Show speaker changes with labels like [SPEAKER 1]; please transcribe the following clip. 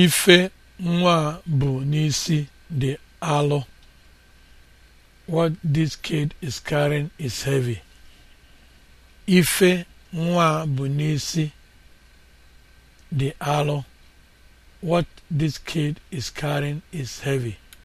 [SPEAKER 1] Ife nwa bụ n'isi dị alụ What this kid is carrying n'isi dị alọ. What this kid is carrying is heavy.